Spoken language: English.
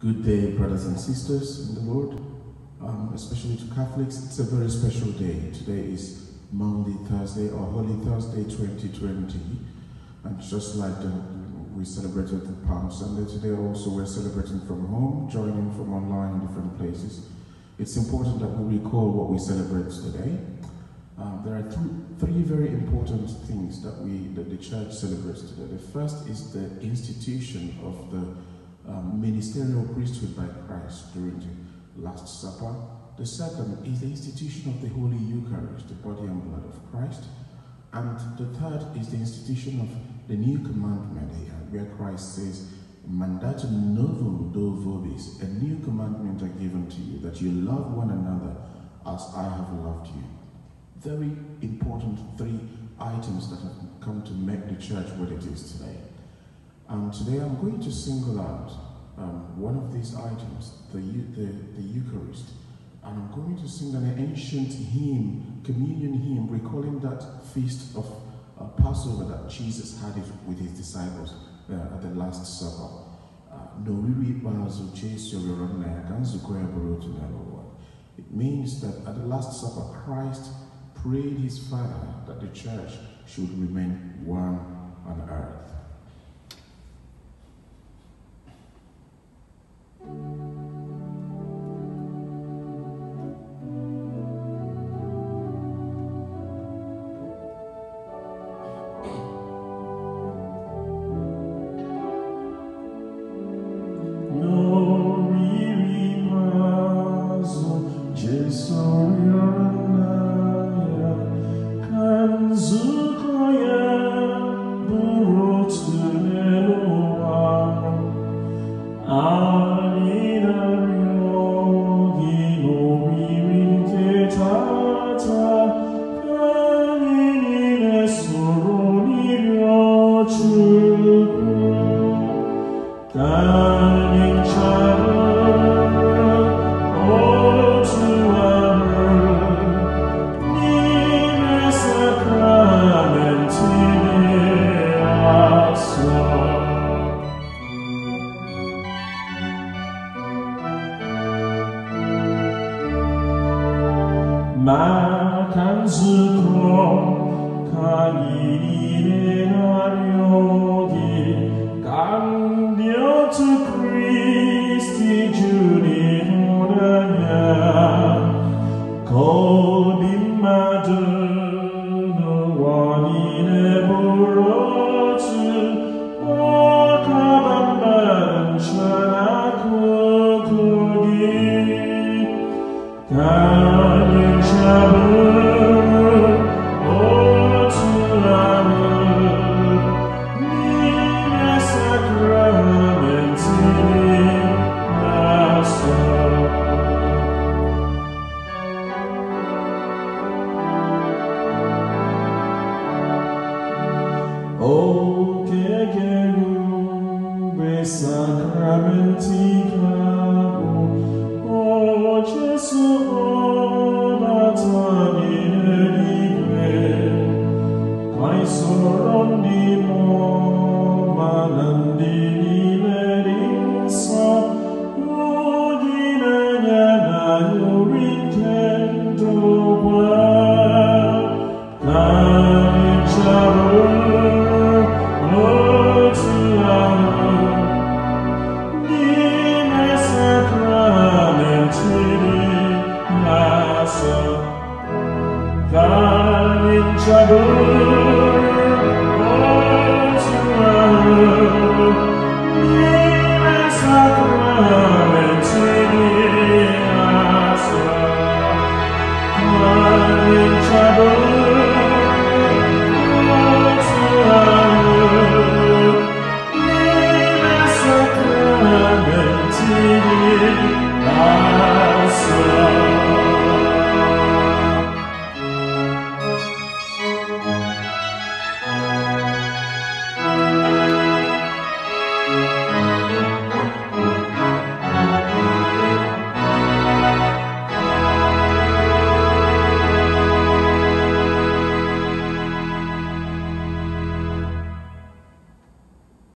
Good day, brothers and sisters in the Lord, um, especially to Catholics. It's a very special day. Today is Monday, Thursday, or Holy Thursday 2020. And just like the, we celebrated the Palm Sunday, today also we're celebrating from home, joining from online in different places. It's important that we recall what we celebrate today. Um, there are th three very important things that we that the church celebrates today. The first is the institution of the um, ministerial priesthood by Christ during the Last Supper. The second is the institution of the Holy Eucharist, the body and blood of Christ. And the third is the institution of the new commandment here, uh, where Christ says, Mandatum novum do vobis, a new commandment are given to you, that you love one another as I have loved you. Very important three items that have come to make the church what it is today. Um, today I'm going to single out um, one of these items, the, the, the Eucharist, and I'm going to sing an ancient hymn, communion hymn, recalling that feast of uh, Passover that Jesus had with his disciples uh, at the Last Supper. Uh, it means that at the Last Supper, Christ prayed his Father that the church should remain one on earth. Ah. 주고 가이래를 하려니 깜 sacramentica, o Gesù, o trouble